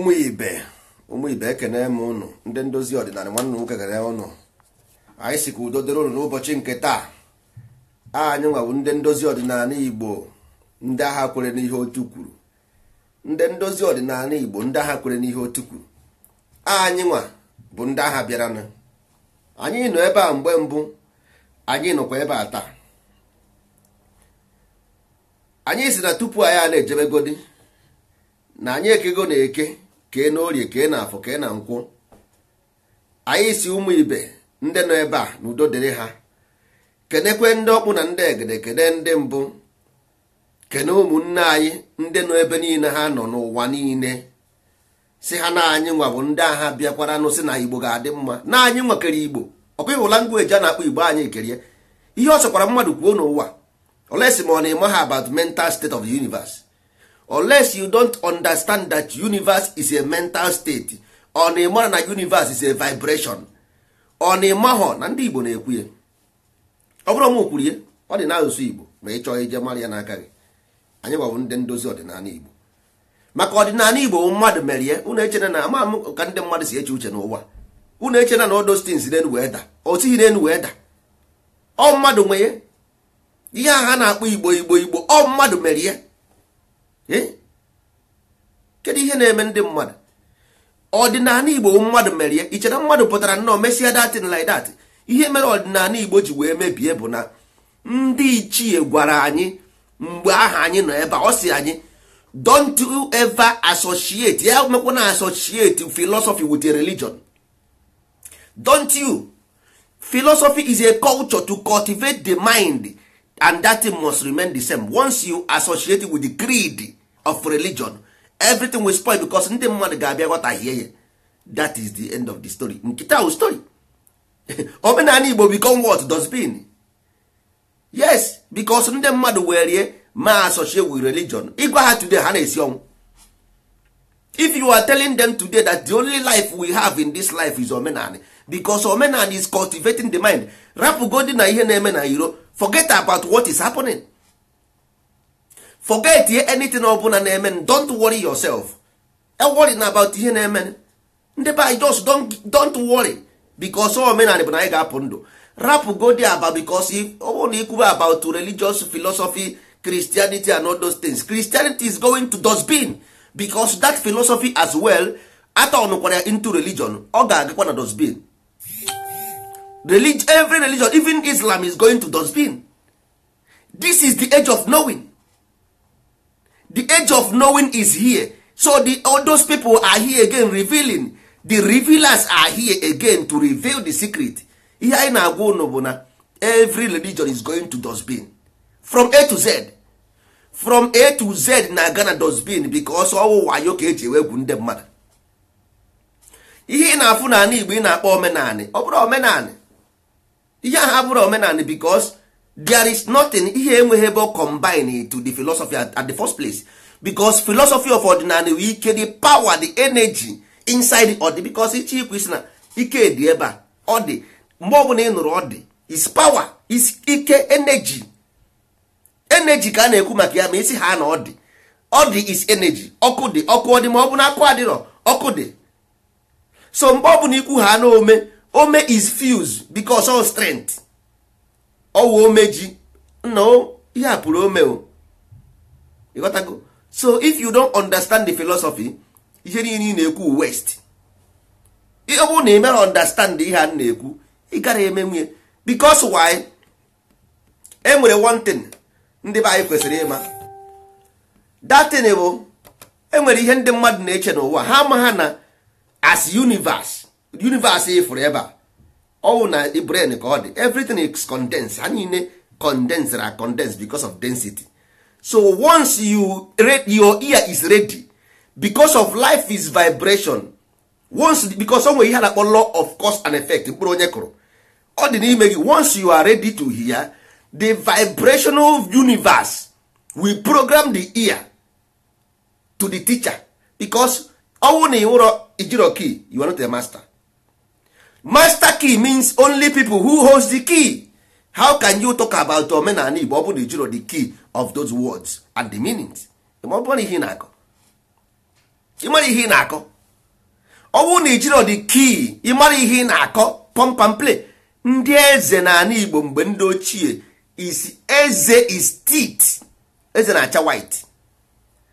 ụmụ ibe ụmụ ibe ekene m ụnụ ndị ndozi ọdịnala nwanne nwoke kene ụnụ anyị si ka udo dịrị ụnụ n'ụbọchị nke taa anyị nwawu ndị ndozi ọdịnala igbo ndị agha kwere n'ihe otu kwuru ndị ndozi ọdịnala igbo ndị agha kwere n'ihe otu kwuru anyị nwa bụ ndị agha bịaranụ anyị nọ ebe a mgbe mbụ anyị nọkwa ebe a taa anyị si na tupu anyị a na-ejebegodi na anyị ekego na eke kee n'orie kee na afọ kee na nkwụ anyị si ụmụ ibe ndị nọ ebe a n'udo dịrị ha kenekwe ndị ọkpụ na ndị egede kene ndị mbụ kene ụmụnne anyị ndị nọ ebe niile ha nọ n'ụwa niile si ha na anyị nwa bụ ndị agha bịakwara nụ si na igbo ga-adị mma na anyị nwa igbo ọkwa ịhụla ngwa eji a na-akpọ igbo anyị kerie ihe ọ chọkwara mmadụ kwuo n'ụwa olesi ma ọ na-eme ha about mental state of the universe unless you don't understand that universe is a mental state ọ na ịmara na universe is a vibration ọ na ịmahọ na ndị igbo na-ekwu ya ọ bụrụ m kwuru ya ọ dị n'asụsụ igbo ma ị chọọ ije mara ya n'aka gị anyị gwabụ ndị ndozi ọdịnala igbo maka ọdịnala igbo mmadụ mere ya unu echena na ama m ka ndị mmadụ si eche uche n'ụwa unu echena na odostins n'elu wee da o n'elu wee da ọ mmadụ nwee ihe a ha na-akpọ igbo igbo igbo ọ mmadụ mere ya Eh? kedu ihe na-eme ndị mmadụ ọdịnala igbo mmadụ mere ya ichere mmadụ pụtara nnọọ mesịa datin like datị ihe mere ọdịnala igbo ji wee mebie bụ na ndị ichie gwara anyị mgbe aha anyị nọ ebe ọ si anyị don't ever associate ya mekwa na associate philosophy with a religion don't you philosophy is a culture to cultivate the mind and that must remain the same once you associate with the creed of religion everything will spoil because ndị mmadụ ga-abịa ghọtahie ya that is the end of the story nkịta wu story omenala igbo become what dustbin yes because ndị mmadụ werie ma associate with religion ịgwa ha today ha na-esi ọnwụ if you are telling them today that the only life we have in this life is omenala because omenala is cultivating the mind rapụ godi na ihe na-eme na iro forget about what is happening forget ihe anything ọbụla na-eme don't worry yourself worry na about ihe na-eme ndị be anyị just don't, don't worry because all bụ na anyị ga-apụ ndụ rapụ go there about because ọ bụrụ na ikwube about religious philosophy christianity and all those things christianity is going to dustbin because that philosophy as well ata ọnụkwara ya into religion ọ ga-agakwa na dustbin religion, every religion even islam is going to dustbin this is the age of knowing the age of knowing is here so the, all those people are here again revealing the revealers are here again to reveal the secret ihe anyị na-agwa unu bụ na every religion is going to dustbin from a to z from a to z na-aga na dustbin because ọwụ wayo ka eji egwu ndị mmadụ ihe ị na-afụ n'ala igbo ị na-akpọ omenanị ọ bụrụ omenanị ihe ahụ abụrụ omenanị because there is nothing ihe enweghị ebe combine to the philosophy at, at the first place because philosophy of ordinary wee ike the power the energy inside the dị because it is Krishna. He na ike dị ebe a ọ dị mgbe ọbụla ị nụrụ is power is ike energy energy ka a na-ekwu maka ya ma isi ha na is energy ọkụ dị ọkụ ọ dị ma ọ bụ na akụ adịrọ ọkụ dị so mgbe ọbụla ikwu ha na ome ome is fuse because all strength ọwa omeji nna ihe a pụrụ ome o ịghọtago so if you don't understand the philosophy ihe niile ị na-ekwu west ọ bụrụ na ị mere ihe a na-ekwu ị gara eme nwunye because why e nwere one thing ndị be anyị kwesịrị ịma that thing bụ enwere ihe ndị mmadụ na-eche n'ụwa ha ma ha na as universe universe ịfụrụ ebe a all na brain ka ọ dị everything is condensed ha niile condensed are condensed because of density so once you your ear is ready because of life is vibration once because onwe ihe na-akpọ law of cause and effect mkpụrụ onye kụrụ ọ dị n'ime gị once you are ready to hear the vibrational universe will program the ear to the teacher because ọnwụ na ịwụrọ ijiro key you are not a master master key means only people who holds the key how can you talk about omenala igbo ọ bụrụ ijiro the key of those words and the meanings ọ bụrụ ihe na-akọ ịmara ihe ị na-akọ ọ bụrụ na ijiro the key ịmara ihe ị na-akọ pump play ndị eze n'ala igbo mgbe ndị ochie is eze is teeth eze na-acha white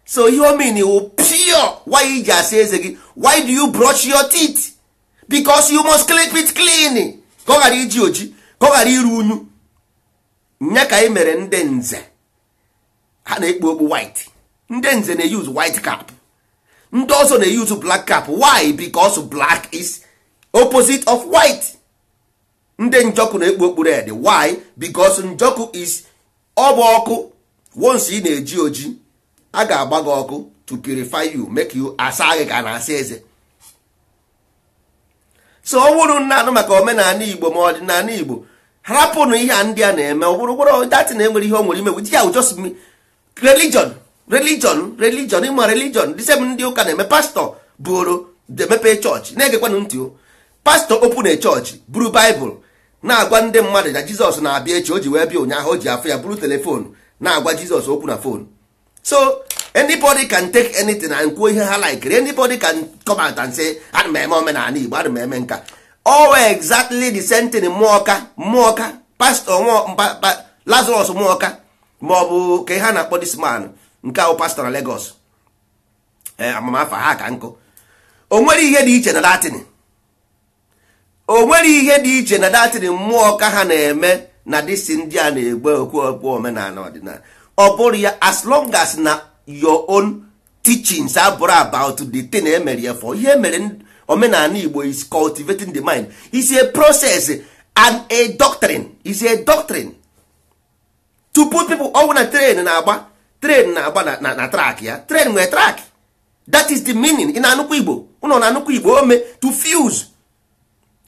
so ihe mean wụ pure why he asị eze gị why do you brush your teeth? because you must clip it clean ka ọ ghara iji oji ka ọ ghara iru unyu nya ka anyị mere ndị nze ha na-ekpu okpu white ndị nze na white cap ndị ọzọ na-eyuzu black cap why because black is opposite of white ndị njọkụ na-ekpu okpu red why because njọkụ is ọbụ ọkụ once ị na-eji oji a ga-agba gị ọkụ to purify you make you asa gị ka na-asa eze so ọ wụrụ nna anụ maka omenala igbo ma ọdịnala igbo hapụnụ ihe a ndị a na-eme ọ bụrụ gwọrọ datin enwere ihe o nwere imegwu ji ya just religion religion religion ịma religion dị sem ndị ụka na-eme pastọ bụrụ demepe chọọchị na-egekwanụ ntị pastọ opun chọọchị buru baịbụl na-agwa ndị mmadụ na jizọs na-abịa echi o ji wee bịa ụnyaahụ o ji afụ ya buru telefon na-agwa jizọs okwu na fon. so anybody can take anything and kwuo ihe ha like anybody can come out and say ana m eme omenala igbo ana m eme nka owe exactly the same thing mmụọka mmụọka pastọ lazarus mmụọka ma ọ bụ ka ha na-akpọ this man nke ahụ pastor na Lagos eh, amamafa ha ka nkụ o nwere ihe dị iche na datin o nwere ihe dị iche na datin mmụọ ha na-eme na disi ndị a na-egbe okwu okpu omenala ọdịnala ọ bụrụ ya as long as na your own teachings abụrụ about the thing emere ya for ihe mere omenala igbo is cultivating the mind is a process and a doctrine is a doctrine to put people ọwụ na train na-agba train na-agba na track ya train nwere track that is the meaning ị na-anụkwa igbo ụnọ na-anụkwa igbo ome to fuse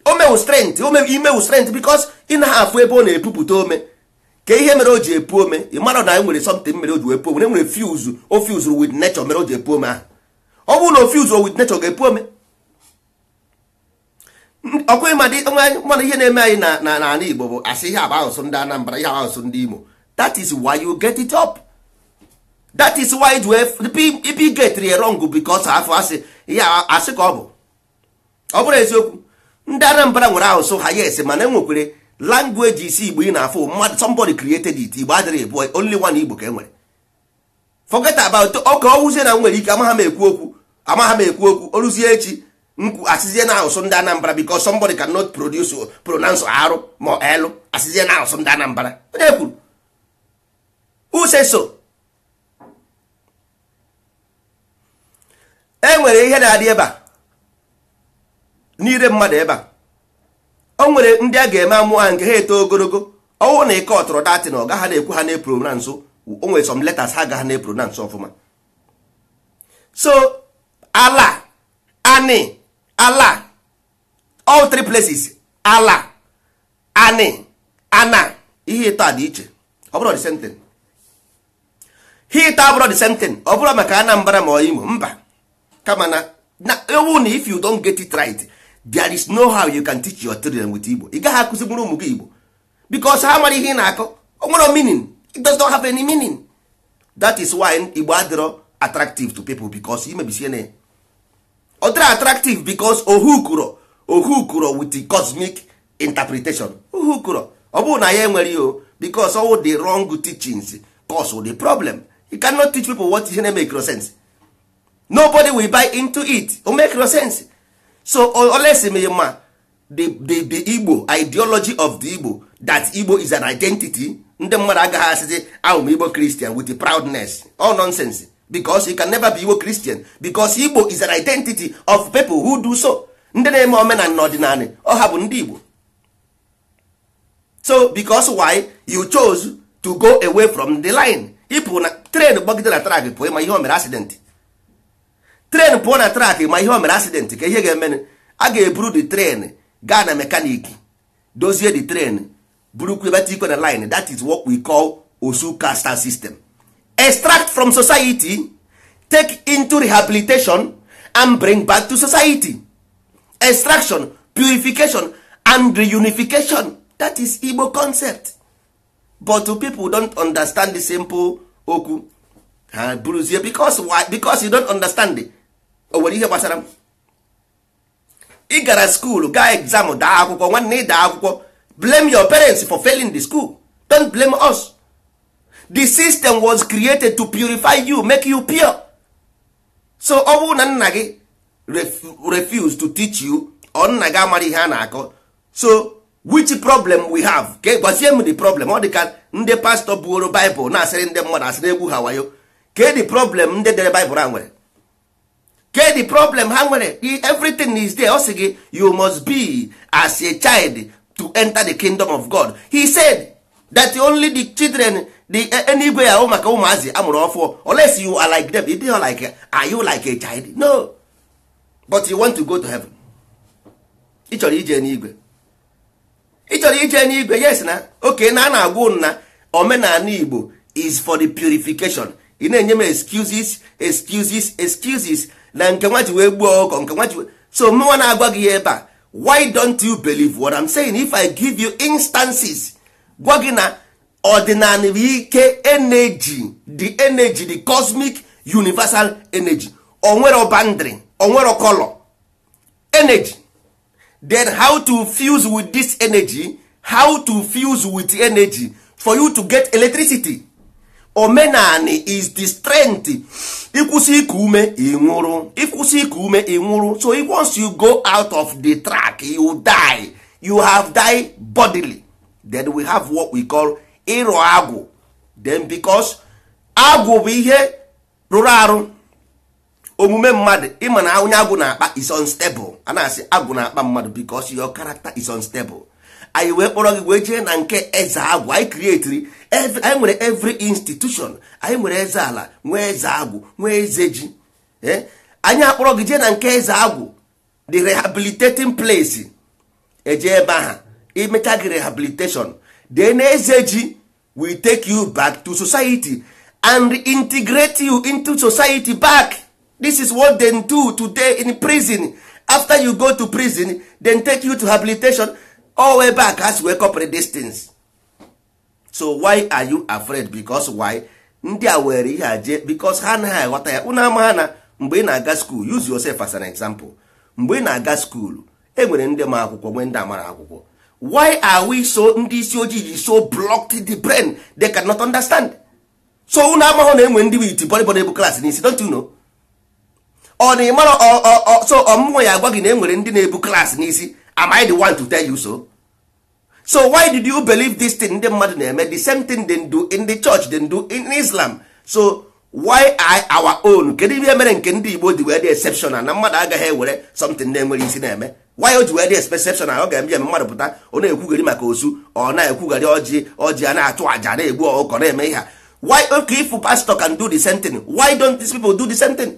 ome strength ome imewu strength because ị na-afụ ebe ọ na-epupụta ome ka ihe mere o ji epu ome ị mara na anyị e nwere something mere o ji epu puo ome enwere fuse o fuse with nature mere o ji epu ome ahụ ọ bụrụ na o fuse o with nature ga-epu ome ọkwa mana ihe na-eme anyị na n'ala Igbo bụ asị ihe agba ahụsụ ndị Anambra ihe agba asụsụ ndị Imo that is why you get it up that is why it wee ipi getri wrong because afọ asị ihe asị ka ọ bụ ọ bụrụ eziokwu ndị Anambra nwere ahụsụ ha yes mana enwekwere language isi igbo ị na-afụ mmadụ somebody created it igbo adịrị bụ only one igbo ka e nwere forget about ọka ọwụzie na nwere ike amaghama ekwu okwu Amaghama m ekwu okwu oruzie echi nkwu asịzie na asụsụ ndị anambra because somebody cannot produce pronounce arụ ma elu asịzie na ahụsụ ndị anambra onye kwuru use so e nwere ihe na-adị ebe a Niile mmadụ ebe a o nwere ndị a ga-eme amụ nke ha eto ogologo ọnwụ na ike ọtụrụ datị na ọ gaghị na-ekwu ha na-epro na nso o nwere some letters ha gaghị na-epro na nso ọfụma so ala ani ala all three places ala ani ana ihe ịta dị iche ọ bụrụ the same ihe ịta abụrụ the same ọ bụrụ maka Anambra ma ọ Imo mba kama na ewu na if you don't get it right there is no how you can teach your children with igbo ị gaghị akụzi mụrụ ụmụ gị igbo because ha mara ihe ị na-akọ o nwere meaning it does not have any meaning that is why igbo adịrọ attractive to people because may na ya ọ Other attractive because ohu kụrọ ohu kụrọ with the cosmic interpretation ohu kụrọ ọ bụrụ na ya enwere o because all the wrong teachings cause the problem you cannot teach people what ihe na-emekro sense nobody will buy into it o no sense so olesimema the, the, the igbo ideology of the igbo that igbo is an identity ndị mmadụ agaghị asịzi ahụ igbo christian with the proudness all nonsense because you can never be igbo christian because igbo is an identity of people who do so ndị na-eme omenala na ọdịnala ọha bụ ndị igbo so because why you chose to go away from the line ịpụ na tren gbagide na trak pụ ịma ihe o mere accident tren pụọ na trak ma ihe o mere asidenti ka ihe ga-emenụ a ga-eburu de tren gaa na mekaniki dozie the tren burukwu ebata ikwe na line that is what we call osu caste system extract from society take into rehabilitation and bring back to society extraction purification and reunification that is igbo concept but people don't understand the simple okwu ha ah, buruzie because why? because you don't understand it o nwere ihe gbasara m ị gara skuul gaa exam daa akwụkwọ nwanne ị daa akwụkwọ blame your parents for failing the school don't blame us the system was created to purify you make you pure so ọ bụrụ na nna gị refuse to teach you ọ nna gị amara ihe a na-akọ so which problem we have ka gwazie m the problem ọ dị ka ndị pastọ buoro Bible na-asịrị ndị mmadụ asịrị egwu ha wayo ka the problem ndị dere Bible a nwere ke the problem ha nwere everything is there ọ sị gị you must be as a child to enter the kingdom of god he said that only the children the enigwe eh, ahụ maka ụmụazị amụrụ for. unless you are like them are like are you like a child no but you want to go to heaven It's chọrọ ije n'igwe ị ije n'igwe yes na oke na a na-agwa nna omenala igbo is for the purification ị na-enye m excuses excuses excuses na nke wee gbuo ọkọ nke so mụnwa na-agwa gị ya ebe a why don't you believe what I'm saying if I give you instances gwa gị na ọdịnala ike energy the energy the cosmic universal energy onwero boundary onwero color energy then how to fuse with this energy how to fuse with energy for you to get electricity omenani is the strength ịkwụsị kume ume ịnwụrụ ịkwụsị see ume ịnwụrụ so once you go out of the track you die you have died bodily then we have what we call ịrụ agwụ then because agwụ bụ ihe rụrụ arụ omume mmadụ ịma na onye agwụ na-akpa is unstable a na-asị agwụ na-akpa mmadụ because your character is unstable anyị wee kpọrọ gị wee jee na nke eze agwụ anyị krietiri anyị nwere every institution anyị nwere eze ala nwee eze agwụ nwee eze ji eh? anyị akpọrọ gị jee na nke eze agwụ the rehabilitating place eje ebe aha imecha gị rehabilitation then eze ji will take you back to society and integrate you into society back this is what they do today in prison after you go to prison then take you to rehabilitation all ebe a ka ha si wee kọpụrụ distance so why are you afraid because why ndị a were ihe aje? jee because ha anaghị aghọta ya unu ama ha na mgbe ị na-aga skuul use yourself as an example mgbe ị na-aga skuul e nwere ndị ma akwụkwọ nwee ndị amara akwụkwọ why are we so ndị isi ojii ji so blocked the brain they cannot understand so unu amahụ na enwe ndị wit bọrịbọrị bụ klaasị n'isi don't you know ọ na ịmara so ọmụmụ ya agwa gị na enwere ndị na-ebu klaasị n'isi am i the one to tell you so so why did you believe this thing ndị mmadụ na-eme the same thing they do in the church they do in islam so why I our own kedu ihe mere nke ndị igbo ji wee dị exceptional na mmadụ agaghị ewere something na-enwere isi na-eme why o ji wee dị exceptional ọ ga-eme mmadụ pụta ọ na-ekwugharị maka osu ọ na-ekwugharị ọjị ọjị a na-atụ àjà na-egbu ọkọ na-eme ihe why okay if pastor can do the same thing why don't these people do the same thing?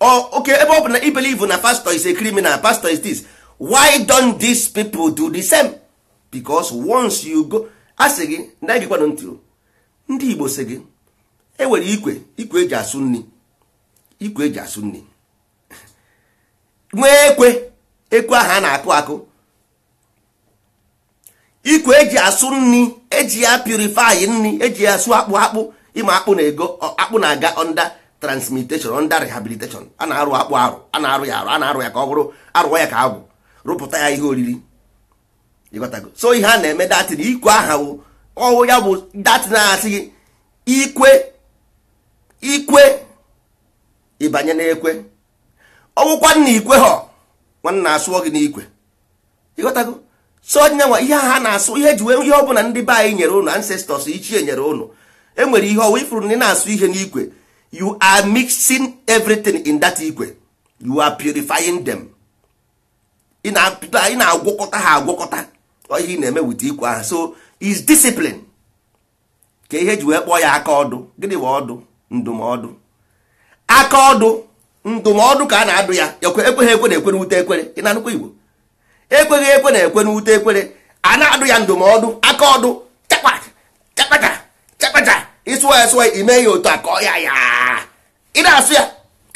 Oh, oke ebe ọ bụ na ibelive na pastor is a criminal pastor is this why don these people do the same because once you go Asị gị na gị kwanụ ntị ndị igbo sị gị enwere ikwe ikwe eji asụ nri ikwe eji asụ nri nwee ekwe ekwe ahụ a na-akụ akụ ikwe eji asụ nri eji ya purify nri eji ya asụ akpụ akpụ ịma akpụ na ego akpụ na-aga onda transmutation under rehabilitation a na-arụ akpụ arụ a na-arụ ya arụ a na-arụ ya ka ọ bụrụ arụọ ya ka agwụ rụpụta ya ihe oriri ịghọtago so ihe a na-eme datin ikwe aha wụ ya bụ datin asị gị ikwe ikwe ịbanye n'ekwe ọwụkwa nna ikwe ha nwanna asụọ gị n'ikwe so ọdịnyanwa ihe ha na-asụ ihe ji wee ihe ọbụla ndị be anyị nyere ụnụ ancestors ichie nyere ụnụ enwere ihe ọwụ ifuru na ị na-asụ ihe n'ikwe you are mixing everything in that igwe you are purifying them ị na-agwọkọta ha agwọkọta ihe ị na-eme wit ikwe ahụ so is discipline ka ihe ji wee kpọọ ya aka ọdụ gịnị ọdụ ndụmọdụ aka ọdụ ndụmọdụ ka a na-adụ ya ekweghị ekwe na ekwe n'ute ekwere ị na-anụkwa igbo ekweghị ekwe na ekwe n'ute ekwere a na-adụ ya ndụmọdụ aka ọdụ chakpaka chakpaka ịsụwa ya sụwa ime ya otu a kọọ ya ya ị na-asụ ya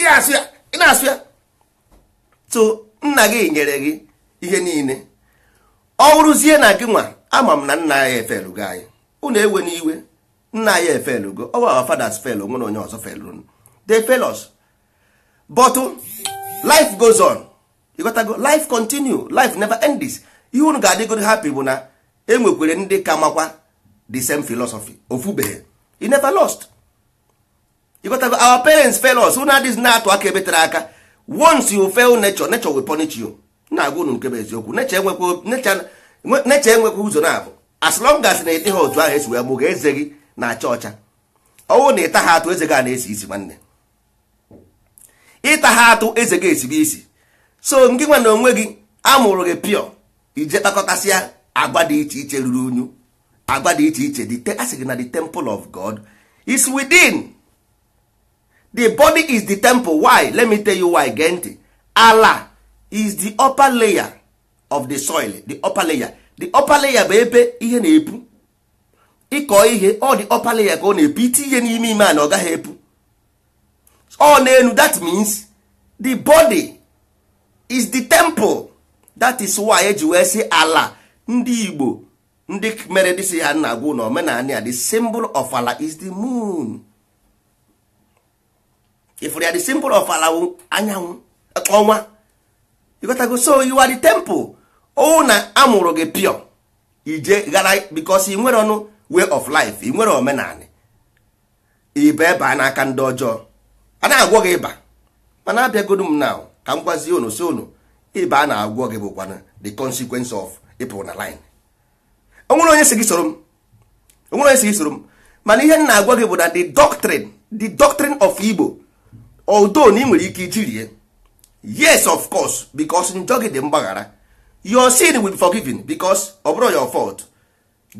ị na-asụ ya ị na-asụ ya Tụ nna gị nyere gị ihe niile ọ wụrụzie na gị nwa ama m na nna ya gị anyị unu ewe iwe nna ya gị ọ gwa fathers fel onwe na onye ọzọ felụ de fail us but life goes on ịghọtago life continue life never ends ihe unu ga-adịgoro happy bụ na enwekwere ndị ka makwa the same philosophy ofubeghị he never lost you got our parents fail us una dis na-atụ aka ebe tere aka once you fail nature nature will punish you na-agwa unu bụ eziokwu nature enwekwa ụzọ na-abụ as long as na-ete ha otu ahụ esi wee mụga eze gị na-acha ọcha ọwụ na ịta ha atụ eze gị a na-esi isi nwanne ịta ha atụ eze gị esibe isi so ngị nwa na onwe gị amụrụ gị pịọ ije kpakọtasịa agwa dị iche iche ruru unyu agba dị iche iche a sị na the temple of god is within the body is the temple why let me tell you why gee ntị ala is the upper layer of the soil the upper layer the upper layer bụ ebe ihe na-epu ịkọ ihe ọ dị upper layer ka ọ na-epu iti ihe n'ime ime a na ọ gaghị epu ọ na-enu that means the body is the temple that is why eji wee sị ala ndị igbo ndị mere dịsị ha nna agwụ na omenala ya the symbol of ala is the moon ifụrụ ya the symbol of ala anyanwụ ọnwa ịgotago so you are the temple ọ na amụrụ gị pio ije gara because i nwere ọnụ way of life i nwere omenala ịba ebe a n'aka ndị ọjọọ a na-agwọ gị ịba mana abịagodu m na ka m gwazie unu si unu ịba a na-agwọ gị bụkwana the consequence of ịpụ na line onwere onye si gị soro m onwere onye si soro m mana ihe m na-agwa gị bụ na the doctrine the doctrine of Igbo although na ị nwere ike yes of course because njọ gị dị mgbaghara your sin will be forgiven because ọ bụrụ your fault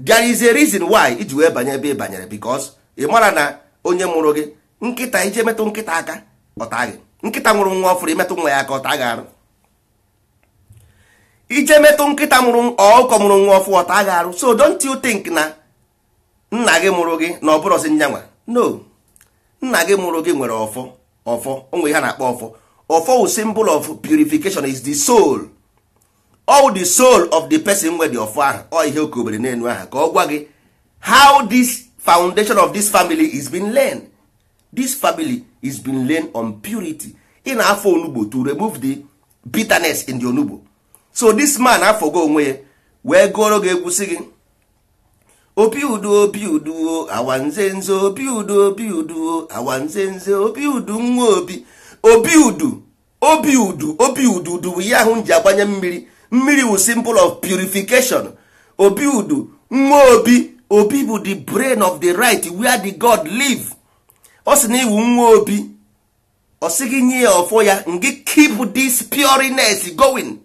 there is a reason why iji wee banye ebe ị banyere because ị mara na onye mụrụ gị nkịta ije metụ nkịta aka ọta gị nkịta nwụrụ nwa ọfụrụ imetụ nwa ya aka ọta gị arụ ije metụ nkịta mụrụ ọkụkọ mụrụ nwa ọfụ ọta agha arụ so don't you think na nna gị mụrụ gị na ọ bụrọzi nyanwa no nna gị mụrụ gị nwere ọfọ ọfọ onwe ha na-akpọ ọfọ ọfọ wu symbol of purification is the soul all the soul of the person nwe dị ọfọ ahụ ọ ihe okobere n'elu aha ka ọ gwa gị how this foundation of this family is been learned this family is been learned on purity ị na-afọ onugbo to remove the bitterness in the onugbo so this man afọgo onwe ya wee gụọrọ gị egwusi gị obi udo obi udo awanze nze obi udo obi udo awanze nze obi udu nwa obi obi udu obi udu obi udu udu ihe ahụ m ji agbanye mmiri mmiri wu symbol of purification obi udu nwa obi obi bụ the brain of the right where the god live ọ sị na iwu nwa obi ọ sị gị nye ya ọfọ ya ngị keep this pureness going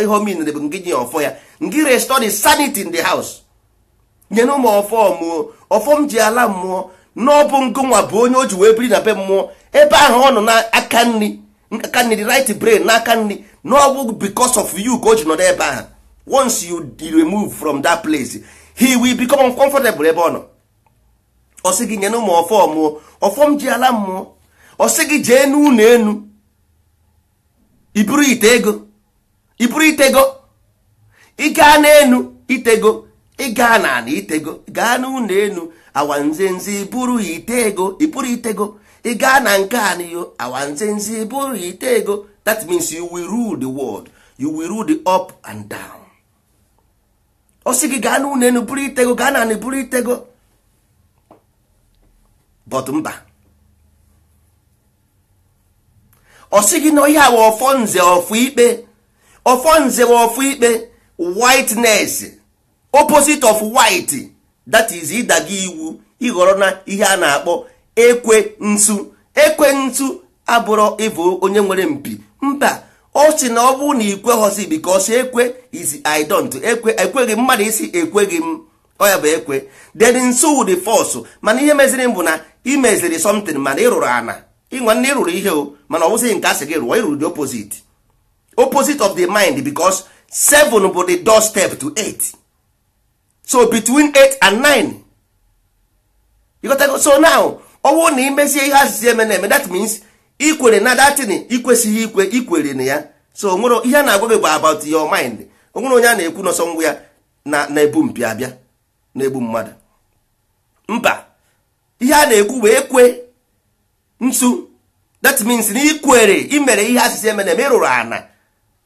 ihe omenre bụ ngị nye ọfọ ya ngị restore sanity in the house nyena ụmụ ọfọ ọfọ m ji ala mmụọ n'ọbụ ngụnwa bụ onye o ji wee biri na be mmụọ ebe ahụ ọ nọ n'aka nri aka nri right brain n'aka nri n'ọbụ because of yu ka o ji nọrọ ebe ahụ once you remove from that place he will become uncomfortable ebe ọ nọ ọ sị gị nyena ụmụ ọfọ mmụọ ọfọm ji ala mmụọ ọ gị jee n'ụlọ enu iburu ite ego ị bụrụ itego ịgaa n'enu itego ịgaa na ana itego gaa n'ụlọ enu awanzenzi bụrụ itego ịbụrụ itego ịgaa na nke anyo awanzenzi bụrụ ego, that means you will rule the world you will rule the up and down ọ sị gị gaa n'ụlọ enu bụrụ itego gaa na ana bụrụ itego but mba ọ sị gị na ọhịa wa ọfọ nze ọfọ ikpe ọfọ nze ikpe whiteness opposite of white that is ịdaga iwu ịghọrọ na ihe a na-akpọ ekwe nsu ekwe nsu abụrụ ịbụ onye nwere mpi mba ọ sị na ọ bụrụ na ikweghọzi because ekwe is I don't ekwe ekweghị mmadụ isi ekweghị m ọ ya bụ ekwe then nso wụrụ fọsụ mana ihe meziri m bụ na imeziri something mana ịrụrụ ana ị ịrụrụ ihe o mana ọ bụzighị nke asị gị rụọ ịrụrụ dị opposite opposite of the mind because 7 bụ the door step to 8 so between 8 and 9 you got so now ọwụ na imezie ihe asịsị eme na that means ikwere na datin ikwesịghị ikwe ikwere na ya so onwere ihe a na-agwa gị bụ about your mind onwere onye a na-ekwu n'ọsọ ngwụ ya na-ebu mpịa abịa na-egbu mmadụ mba ihe a na-ekwu wee kwe nsu that means na ikwere imere ihe asịsị eme na-eme ana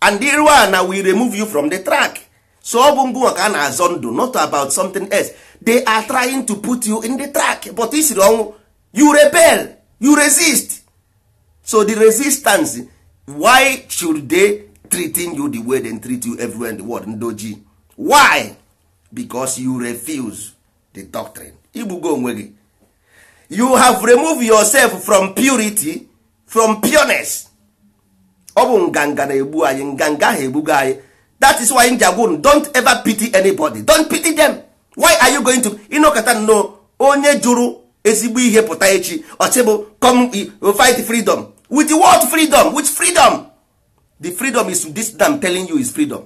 and the one na we remove you from the track so ọ bụ ngụ ka a na-azọ ndụ not about something else they are trying to put you in the track but isiri ọnwụ you rebel you resist so the resistance why should they treating you the way they treat you everywhere in the world ndoji why because you refuse the doctrine igbugo onwe gị you have removed yourself from purity from pureness ọ bụ nganga na-egbu anyị nganga ahụ anyị that is why ndị agwụrụ don't ever pity anybody don't pity them why are you going to ịnọkọta nnọọ onye jụrụ ezigbo ihe pụta echi ọchịbụ come fight freedom with what freedom with freedom the freedom is this that I'm telling you is freedom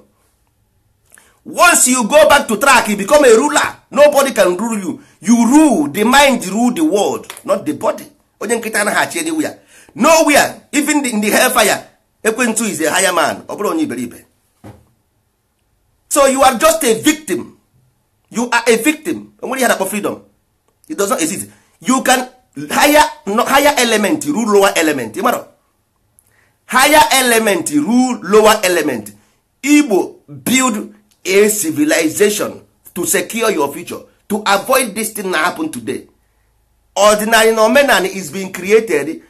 once you go back to track you become a ruler nobody can rule you you rule the mind rule the world not the body onye nkịta anaghị anywhere nowhere even in the hellfire ekwentị is a higher man ọ bụrụ onye iberibe so you are just a victim you are a victim onwere ihe nakpọ freedom it does not exist you can higher, no, higher element rule lower element ịmara higher element rule lower element igbo build a civilization to secure your future to avoid this thing na happen today ordinary na is being created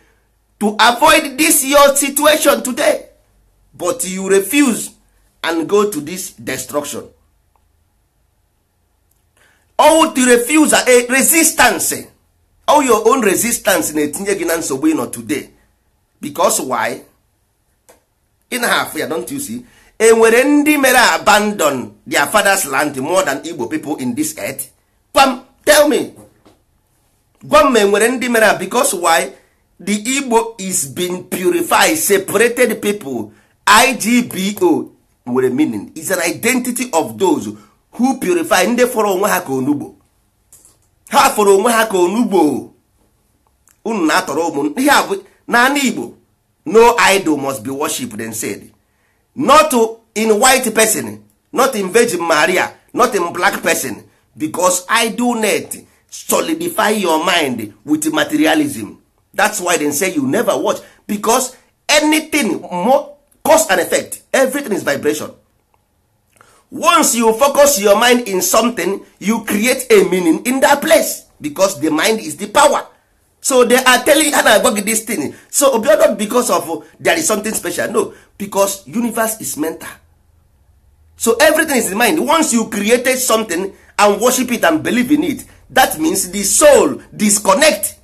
to avoid this your situation today but you refuse and go to this destruction all the refuse a eh, resistance all your own resistance na-etinye gị na nsogbu ịnọ today because why In half ya don't you see enwere eh, ndị mere abandon their fathers land more than igbo people in this earth pam tell me gwa m ma ndị mere because why the igbo is being purified separated people igbo nwere meaning is an identity of those who purify ndị fọrọ onwe ha ka onugbo ha fọrọ onwe ha ka onugbo unu na-atọrọ ụmụ ihe naanị igbo no idol must be worshiped and said not in white person not in virgin maria not in black person because net solidify your mind with materialism that's why they say you never watch because anything more cause and effect everything is vibration once you focus your mind in something you create a meaning in that place because the mind is the power so they are telling ha na this thing so obiọ because of uh, there is something special no because universe is mental so everything is in mind once you created something and worship it and believe in it that means the soul disconnect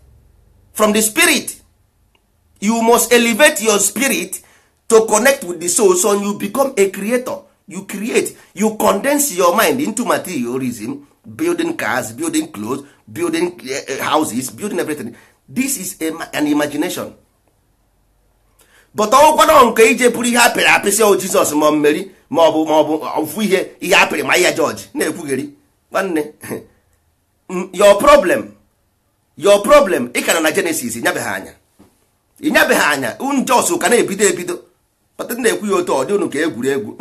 from the spirit you must elevate your spirit to connect with the soul so you become a creator you create you condense your mind into materialism building cars building clothes building eh, eh, houses building everything this is a, an imagination but ọnwụkwana nke ije bụrụ ihe apịrị apịsị o oh, jizọs ma mmeri ma ọ bụ ma ọ bụ ofu ihe ihe apịrị ma ihe jọji na-ekwugheri nwanne your problem your problem ị na na Genesis ịnyabeghị anya ịnyabeghị anya njọs ka na-ebido ebido ọtụtụ na-ekwu ya otu ọ dị unu ka egwuregwu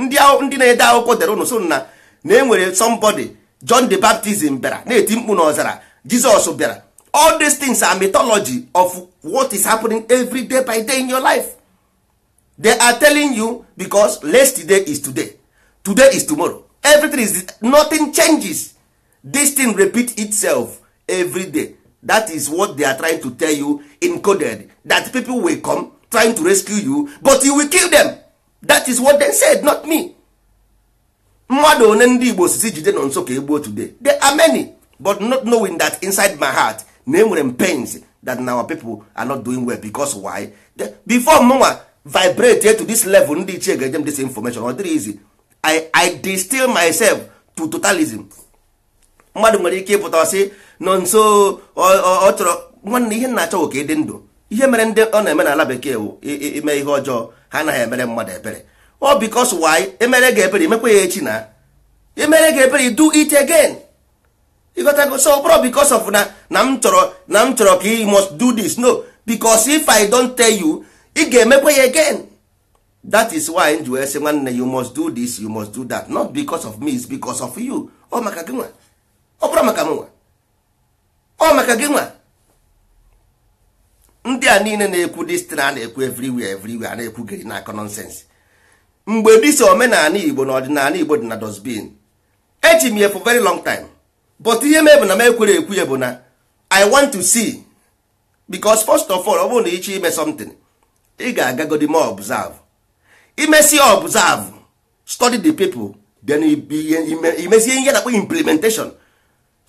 ndị na-ede akwụkwọ dere unu so na enwere somebody John the Baptist bịara na-eti mkpu n'ọzara Jizọs bịara all these things are mythology of what is happening every day by day in your life they are telling you because day is today today is tomorrow everything is nothing changes this thing repeat itself every day that is what they are trying to tell you encoded that people will come trying to rescue you but you will kill them that is what they said not me mmadụ one ndị igbo jide nọ nso ka today there are many but not knowing that inside my heart na enwere m pains that our people are not doing well because why before mụnwa vibrate to this level ndị ichie ga this information ọ dịrị easy I, I distill myself to totalism mmadụ nwere ike ịpụta sị nọ nso ọ chọrọ nwanne ihe na-achọ ka ịdị ndụ ihe mere ndị ọ na-eme n'ala bekee wụ ime ihe ọjọọ ha anaghị emere mmadụ ebere ọ bikos why emere gị ebere emekwa ya echi na emere gị ebere do it again ịgotago so ọ bụrụ bikos of na na m chọrọ na m chọrọ ka ị must do this no because if i don't tell you ị ga-emekwa ya again that is why m ji wee sị nwanne you must do this you must do that not because of me it's because of you ọ maka gị nwa ọ bụrụ maka m nwa ọ maka gị nwa ndị a niile na-ekwu dis a na-ekwu everywhere everywhere a na-ekwugịrị na-akọ nọnsensị mgbe dịsa omenala igbo na ọdịnala igbo dị na dosbin echi m ya for very long time but ihe mebụ na m ekwere ekwu ya bụ na i want to see because first of all ọ bụrụ na ịchọ ime something ị ga-agagodi ma observe Imesi observe study the people then imezie ihe na implementation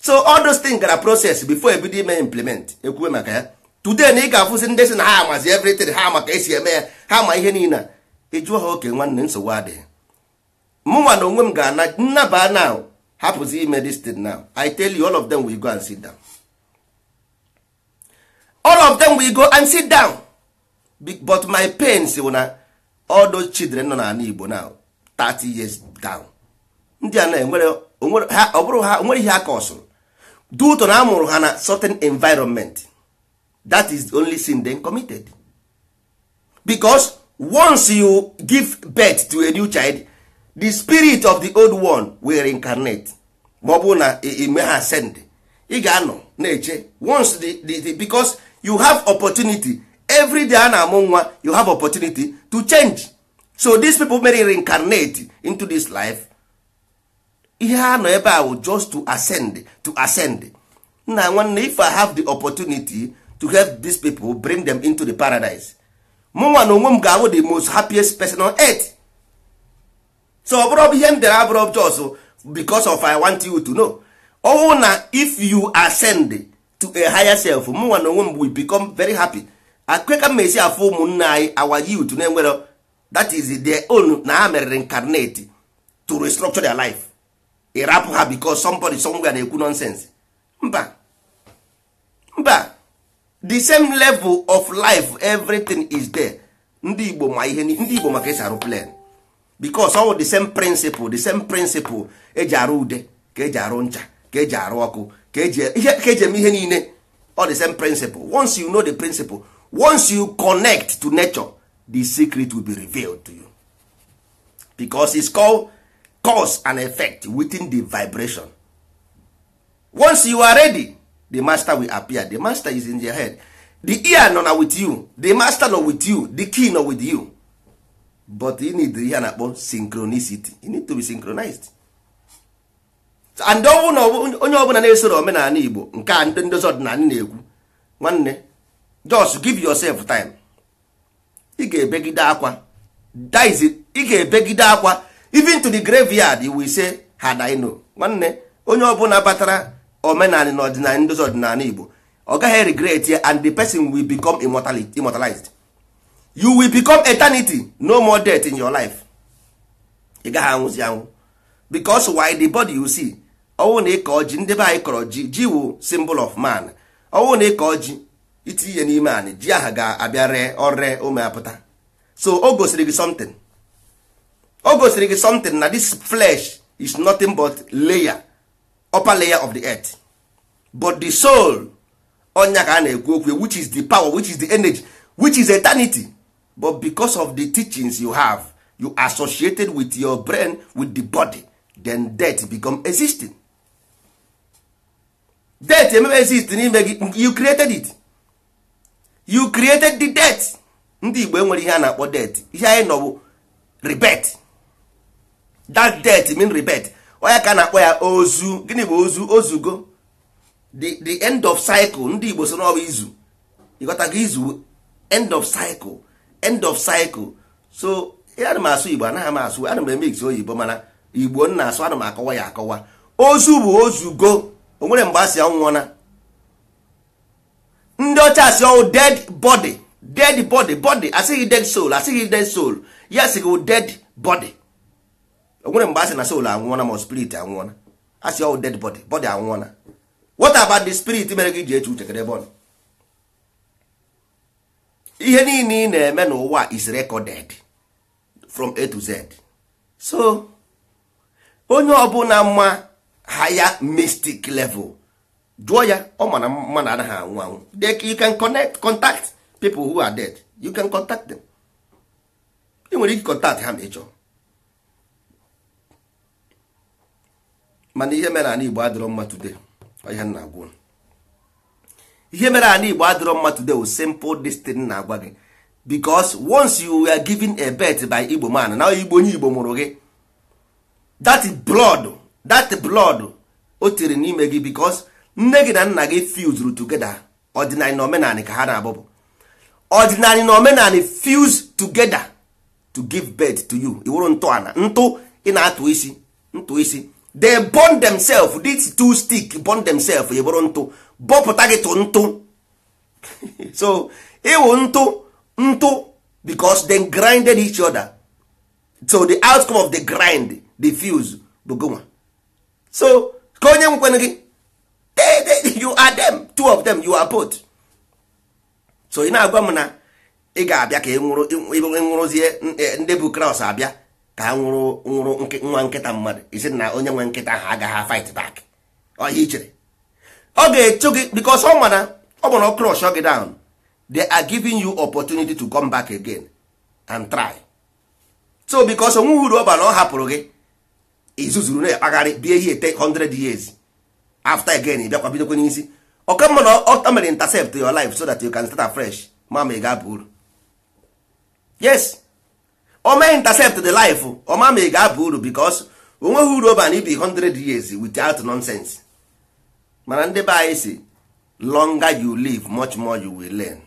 so all those things gara process before ebido ime implement ekwuwe maka ya today na ị ga-afụzi ndị si na ha amazi everything ha maka esi eme ya ha ma ihe niile ịjụọ ha oke nwanne nsogbu adịghị mụnwa na onwe m ga-ana nnaba na hapụzi ime this thing now i tell you all of them will go and sit down all of them will go and sit down but my pain wụ na all those children nọ n'ala Igbo now 30 years down ndị a na-enwere ọ bụrụ ha onwere ihe aka ọsụrụ dutọ na amụrụ ha na certain environment that is the only sin they committed because once you give birth to a new child the spirit of the old one will reincarnate ma ọ bụ na ime ha send ị ga-anọ na-eche once the, the, the, because you have opportunity every day a na-amụ nwa you have opportunity to change so these people may reincarnate into this life ihe ha nọ ebe a wụ just to ascend to ascend nna nwanne if i have the opportunity to help these people bring them into the paradise mụnwa na onwe m ga-awụ the most happiest person on earth so ọ bụrụ ihe m dere abụrụ jos because of i want you to know ọwụ na if you ascend to a higher self mụnwa na onwe m we become very happy akweka m esi afụ ụmụnna anyị our youth na-enwere that is their own na ha mere reincarnate to restructure their life ịrapụ ha because somebody somewhere na-ekwu nonsense mba mba the same level of life everything is there ndị igbo ma ihe ndị igbo maka esi arụ because all the same principle the same principle eji arụ ude ka eji arụ ncha ka eji arụ ọkụ ka eji eme ihe niile all the same principle once you know the principle once you connect to nature the secret will be revealed to you because it's called cause and effect within the vibration once you are ready the master will appear the master is in your head the ear not with you the master nọ with you the key nọ with you but you need the ear na-akpọ synchronicity you need to be synchronized and onye ọbụla na-esoro omenala igbo nke a ndị ndozi ọdịnala na-ekwu nwanne just give yourself time ị ga-ebegide akwa ị ga-ebegide akwa even to the graveyard you will say had I know nwanne onye ọbụla batara omenala na ọdịnala ndozi ọdịnala igbo ọ gaghị regret ya and the person will become immortalized you will become eternity no more death in your life ị gaghị anwụzi anwụ because why the body you see ọnwụ na ịkọ ji ndị be anyị kọrọ ji ji wụ symbol of man ọnwụ na ịkọ ji itinye n'ime anị ji aha ga-abịa ree ọree ụmụ so o gosiri gị something o gosiri gị something na this flesh is nothing but layer upper layer of the earth but the soul onya ka a na-ekwu okwu which is the power which is the energy which is eternity but because of the teachings you have you associated with your brain with the body then death become existing death emebe exist n'ime gị you created it you created the death ndị igbo enwere ihe a na-akpọ death ihe anyị nọ bụ that death mean rebirth onye ka na-akpọ ya ozu gịnị bụ ozu ozugo the end of cycle ndị Igbo so n'ọbụ izu ịghọtago izu end of cycle end of cycle so ya ana m asụ Igbo anaghị m asụ ana m emegzi oyibo mana Igbo na asụ ana m akọwa ya akọwa ozu bụ ozugo o nwere mgbe asị ọnwụọna ndị ọcha asị ọnwụ dead body dead body body asịghị dead soul asịghị dead soul ya asịghị dead body onwere mgbe a sị na soul anwụọna ma spirit anwụọna a sị ọwụ oh, dead body body anwụọna what about the spirit mere gị ji eche uche kedebe ọnụ ihe niile ị na-eme n'ụwa is recorded from a to z so onye ọbụla mma higher mystic level jụọ ya ọ mana mmadụ anaghị anwụ anwụ you can connect contact people who are dead you can contact them ị nwere ike contact ha ma ị mana ihe mere ala igbo adịrọ mma today ihe nna agwụ ihe mere ala igbo adịrọ mma today o simple destin na-agwa gị because once you were given a bet by igbo man na igbo onye igbo mụrụ gị that blood that blood o tiri n'ime gị because nne gị na nna gị fuzuru together ọdịnalị na omenala ka ha na-abụbụ ọdịnalị na omenala fuse togeda to give birth to you iwụrụ ntọala ntụ ị na-atụ isi ntụ isi they bond themselves this two stick bond themselves e bụrụ ntụ bọpụta gị tụ ntụ so ịwụ ntụ ntụ because they grinded each other so the outcome of the grind the fuse bụ gonwa so ka onye nkwenụ gị you are them two of them you are both so ị na-agwa m na ị ga-abịa ka ị nwụrụzie eh, ndị bụ kraus abịa ka ha nwụrụ nwụrụ nwa nkịta mmadụ isi na onye nwe nkịta ahụ agaghị fight back ọhịa ichere ọ ga-echu gị because ọ mana ọ gbara crush gị down they are giving you opportunity to come back again and try so because onwe uru ọ bara ọ hapụrụ gị izuzuru na-akpagharị bie ihe ete 100 years after again bịakwa bidokwa n'isi ọka mma na ọ mere intercept your life so that you can start afresh mama ị ga-aba uru yes ọma intercept the life ọma ma ị ga-aba uru because onweghị uru oban ibi 100 years without nonsense mana ndị be anyị si longer you live much more you will learn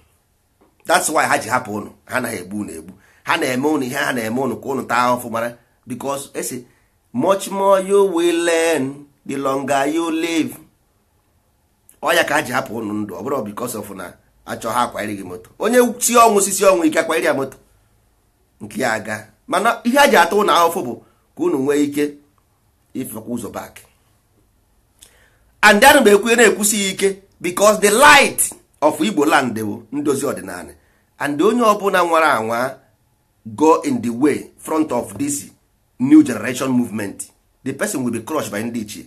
that's why ha ji hapụ unu ha na-egbu unu egbu ha na-eme unu ihe ha na-eme unu ka unu taa ahụfụ mara because esi much more you will learn the longer you live ọya ka ha ji hapụ unu ndụ ọ bụrụ because of na achọ ha akwarịghị moto onye si ọnwụ sisi ọnwụ ike akwarị ya moto nke ya aga mana ihe a ji ata ụlọ ahụfụ bụ ka unu nwee ike ịfekwa ụzọ bak and anụ ekwu na-ekwusi ike because the light of Igbo land bụ ndozi ọdịnala and onye ọbụla nwara anwa go in the way front of this new generation movement the person will be crushed by ndị ichie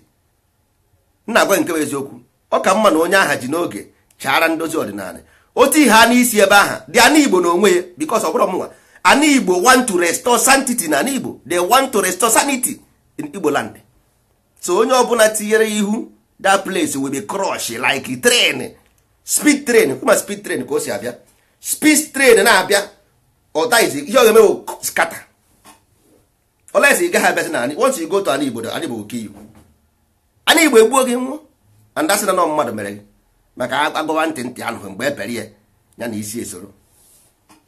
nna agwa nke bụ eziokwu ọ ka mma na onye aha ji n'oge chara ndozi ọdịnala otu ihe a n'isi ebe aha dị Igbo na onwe ya because ọ bụrụ an igbo want to restore sanctity na an igbo they want to restore sanity in igbo land so onye ọbụla tinyere ihu that place will be crush like train speed train kuma speed train ka o si abịa speed train na-abịa ọtaizi ihe ọ ga-emewo skata olesi ị gaghị abịasị na anyị once you go to an igbo an igbo oke iwu anyị igbo egbuo gị nwụọ and asị na nọ mmadụ mere gị maka agụba ntị ntị anụghị mgbe e pere ya ya na isi esoro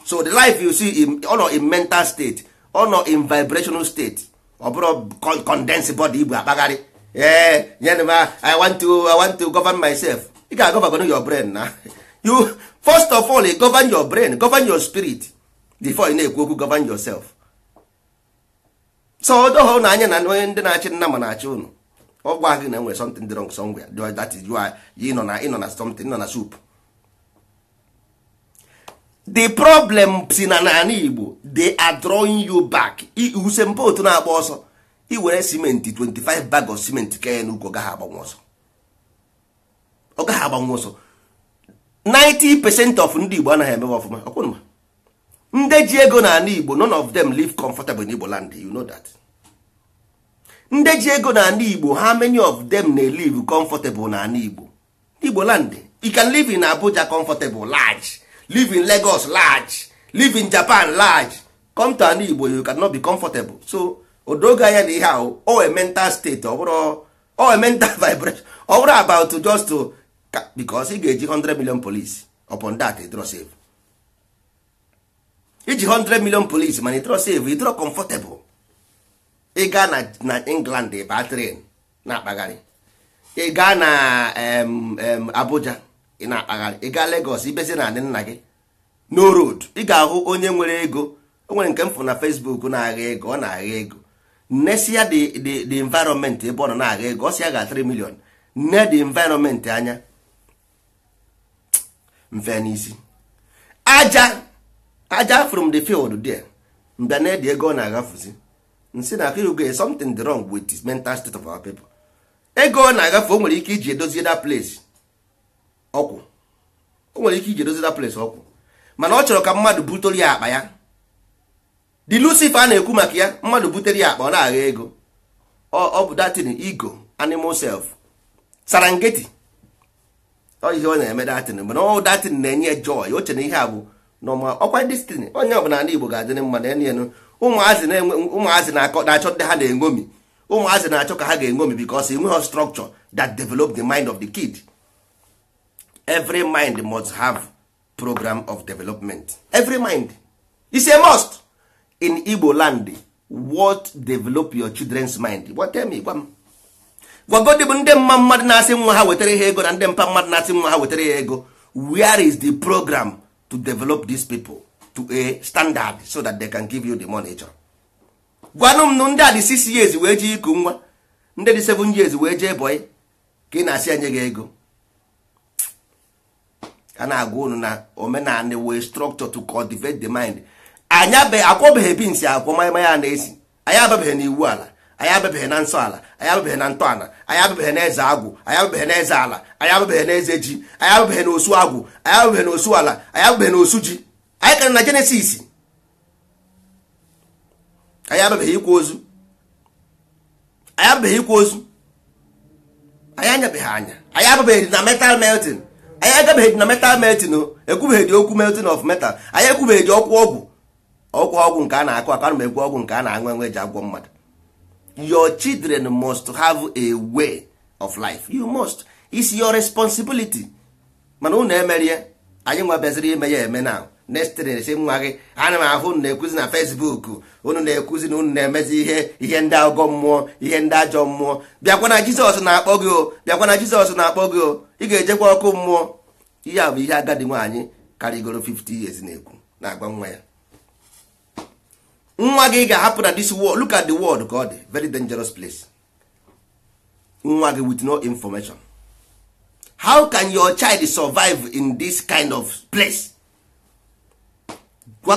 so the life you see ọ nọ in mental state ọ nọ in vibrational state ọ bụrụ condensed body igbo akpagharị ee eh, nyere m i want to i want to govern myself You can govern your brain na you first of all govern your brain govern your spirit before you na na-ekwu okwu govern yourself so odoha ụnụ anya na onye ndị na-achị nna ma na-achị ụnụ ọ gwa gị na nwere something wrong somewhere that is why ị know, na something ị know, na soup the problem si na n'ala igbo they are drawing you back otu na-agba ọsọ iwere simenti 25 bag of simenti kee n'ugwu ọ gaghị agbanwe ọsọ ọ gaghị agbanwe ọsọ 90 percent of ndị igbo anaghị emewe ọfụma ọkwụnụma ndị ji ego na igbo none of them live comfortable in igbo land you know that ndị ji ego na igbo how many of them na live comfortable na igbo igbo land you can live in abuja comfortable large live in lagos large live in japan large come to an igbo you cannot be comfortable so odoge anya na ihe ahụ o mental state ọ bụrụ o mental vibration ọ bụrụ about to just to because ị ga-eji 100 million police upon that ịdrọ save iji 100 million police mana ịdrọ save draw comfortable ịga na na england ịba train na-akpagharị ịga na um, um, abuja ị na-akpagharị ị gaa Lagos ibezi na anị nna gị no road ị ga-ahụ onye nwere ego o nwere nke m na Facebook na-agha ego ọ na-agha ego nnesia the environment ebe ọ nọ na-agha ego ọ si ya ga 3 million nne the environment anya mfe n'isi aja aja from the field there mbịa na edi ego ọ na-agafuzi Nsi na akụrugo something dị wrong with this mental state of our people ego ọ na-agafe o nwere ike iji edozie that place ọkwụ o nwere ike iji dozida place ọkwụ mana ọ chọrọ ka mmadụ butere ya akpa ya di lucifer a na-ekwu maka ya mmadụ butere ya akpa ọ na-agha ego ọ bụ datin ego animal self sarangeti ọ ihe ọ na-eme datin mana ọ datin na-enye joy o chere ihe a bụ nọma ọkwa destiny onye ọbụla ndị Igbo ga-adịrị mma na enu ụmụazị na-achọ ndị ha na-enwomi ụmụazị na-achọ ka ha ga-enwomi because enweghị structure that develop the mind of the kid every mind must have program of development every mind is a must in igbo land what develop your children's mind what tell me gwa m gwagodi bụ ndị mma mmadụ na-asị nwa ha wetara ha ego na ndị mpa mmadụ na-asị nwa ha wetara ya ego where is the program to develop these people to a standard so that they can give you the money chọrọ gwanụ m ndị a dị 6 years wee jee iku nwa ndị dị 7 years wee jee boy ka ị na-asị anye gị ego a na-agwa unu na omenala wee structure to cultivate the mind anyị akwọbeghị bins akwọ mmanya na-esi anyị ababeghị na iwu ala anyị ababeghị na nsọ ala anyị ababeghị na ntọala anyị ababeghị na eze agwụ anyị ababeghị na eze ala anyị ababeghị na eze ji anyị ababeghị na osu agwụ anyị ababeghị na osu ala anyị ababeghị na osu ji anyị kara na jenesis anyị ababeghị ikwu ozu anyị ababeghị ikwa ozu anyị anyabeghị anya anyị ababeghị na metal melting anyị agabeghị na metal melting ekwubeghị okwu melting of metal anyị ekwubeghị ọkwụ ọgwụ ọkwụ ọgwụ nke a na-akụ aka na ekwu ọgwụ nke a na-aṅụ enwe eji agwọ mmadụ your children must have a way of life you must it's your responsibility mana unu emerie anyị nwebeziri ime ya eme na na-esi nwa gị ana m ahụ unu na-ekwuzi na Facebook unu na-ekwuzi na unu na-emezi ihe ihe ndị agọ mmụọ ihe ndị ajọ mmụọ bịakwa na Jizọs na-akpọ gị o bịakwa na Jizọs na-akpọ gị o ị ga-ejekwa ọkụ mmụọ ihe a bụ ihe agadi nwaanyị karịgoro 50 years na-ekwu na-agwa nwa ya nwa gị ga-ahapụ na this world look the wod ka ọ dị very dangerous place nwa gị with no information how can your child survive in this kind of place?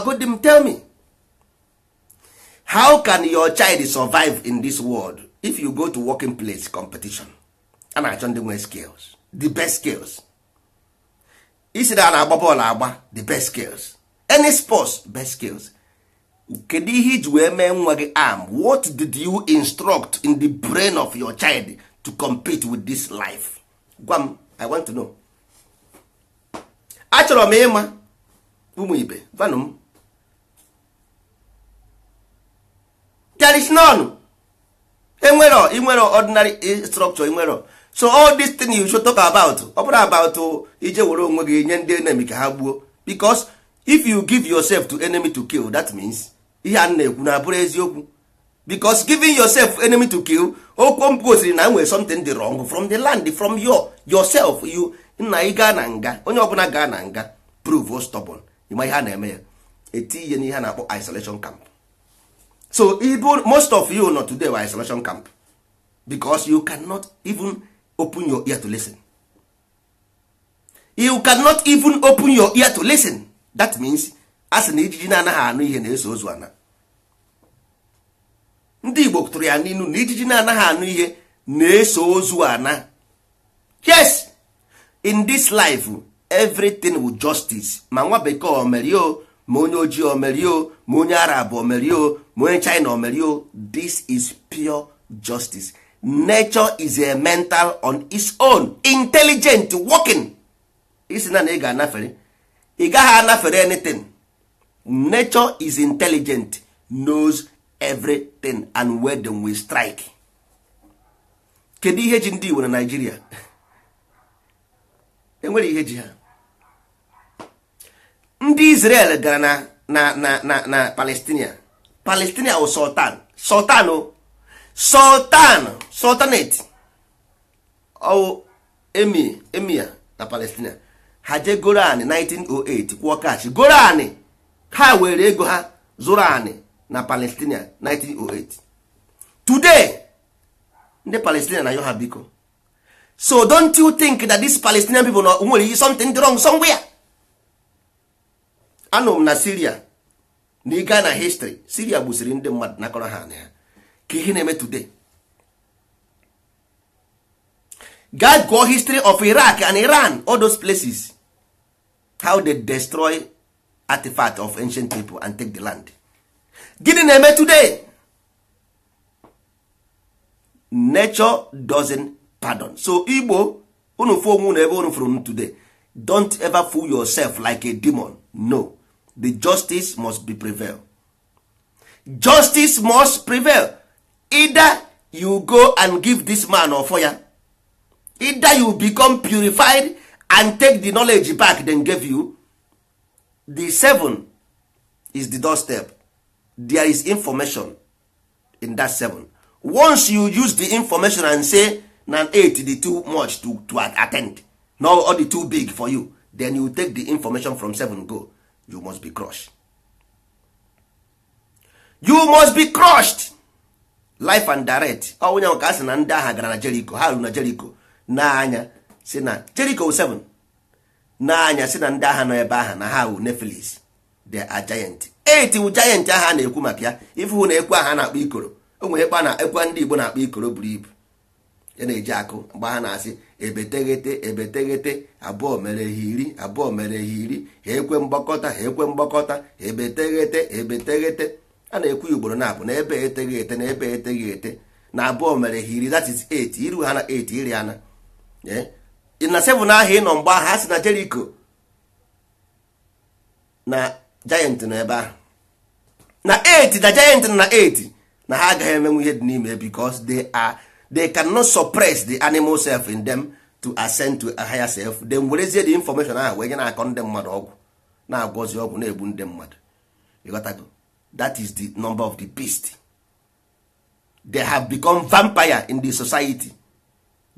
gwago tell me how can your child survive in this world if you go to working place competition a na-achọ ndị nwe skills the best skills isi na a na-agba bọọlụ agba the best skills any sports best skills kedu ihe iji wee mee nwa gị arm what did you instruct in the brain of your child to compete with this life gwa m i want to know achọrọ m ịma ụmụ ibe gwanụ m there is none Imero, Imero, ordinary structure Imero. so all this thing you should talk about ọ bụrụ about ije were onwe gị nye ndị enemy ka ha gbuo because if you give yourself to enemy to kill that means ihe a na-ekwu na abụrụ eziokwu because giving yourself enemy to kill okwu m gosiri na nwere something dị wrong from the land from your yourself you nna ị gaa na nga onye ọbụla gaa na nga prove stubborn ịma ihe a na-eme ya eti ihe a na-akpọ isolation camp so even most of you not today were isolation camp because you cannot even open your ear to listen you cannot even open your ear to listen that means a sị na ijiji na-anaghị anụ ihe na-eso ozu ana ndị igbo tụrụ ya n'inu na ijiji na-anaghị anụ ihe na-eso ozu ana yes in this life everything with justice ma nwa bekee o mere o ma onye ojii omerio ma onye arab omerio ma onye china omerio this is pure justice nature is a mental on its own intelligent working isi na na ị ga-anafere ị gaghị anafere anything nature is intelligent knows everything and where them will strike kedu ihe ji ndị Igbo na Nigeria enwere ihe ji ha ndị Israel gara na na na na na Palestine Palestine wụ sultan sultan sultan sultanate ọwụ emir emir na Palestine ha jee goro anị 1908 kwụọ kachi goro anị ha were ego ha zụrụ anị na Palestine 1908 today ndị Palestine na yo biko so don't you think that these Palestinian people nwere something wrong somewhere anụ m na siria na na histri siria gbusiri ndị mmadụ nakọrọ ha na ka ihe na-eme today gaa gụọ history of iraq and iran all those places how they destroy artifact of ancient people and take the land gịnị na-eme today nature doesn't pardon so igbo unu fụ onwe unu ebe unu fụrụ today don't ever fool yourself like a demon no the justice must be prevail justice must prevail either you go and give this man or fire. either you become purified and take the knowledge back then give you the seven is the doorstep there is information in that seven once you use the information and say na eight the too much to, to attend no all the too big for you then you take the information from seven go you must be crushed you must be crushed life and direct onye ka a sị na ndị agha gara na Jericho ha ruru na Jericho n'anya si na Jericho 7 n'anya si na ndị agha nọ ebe ahụ na ha wu nepheles the are giant eight wu giant aha na-ekwu maka ya ifu hụ na ekwe aha na-akpọ ikoro o nwere ekwe na-ekwe ndị Igbo na-akpọ ikoro buru ibu E na-eji akụ mgbe ha na-asị ebeteghete ebeteghete abụọ mere ha iri abụọ mere ha iri ha ekwe mgbakọta ha ekwe mgbakọta ebeteghete ebeteghete a na-ekwu ya ugboro na-abụ na ebe eteghị ete na ebe eteghị ete na abụọ mere ha iri that is 8 iru ha na 8 iri ana na 7 e, ahụ ịnọ mgbe ahụ ha si na Jericho na giant na ebe ahụ na 8 na giant na 8 na ha agaghị emenwu ihe dị n'ime because de are they cannot suppress the animal self in them to ascend to a higher self will werezie the information ahụ wee nye na-akọ ndị mmadụ ọgwụ na-agwọzi ọgwụ na-egbu ndị mmadụ ịghọtago is the number of the beast they have become vampire in the society